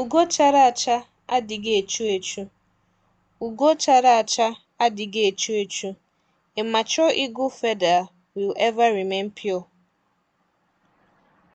Ugo chara acha adịghị echu echu. Ugo chara acha adịghị echu echu. A mature eagle feather will ever remain pure.